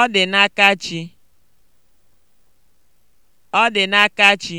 Ọ dị n'aka Chi. Ọ dị n'aka Chi.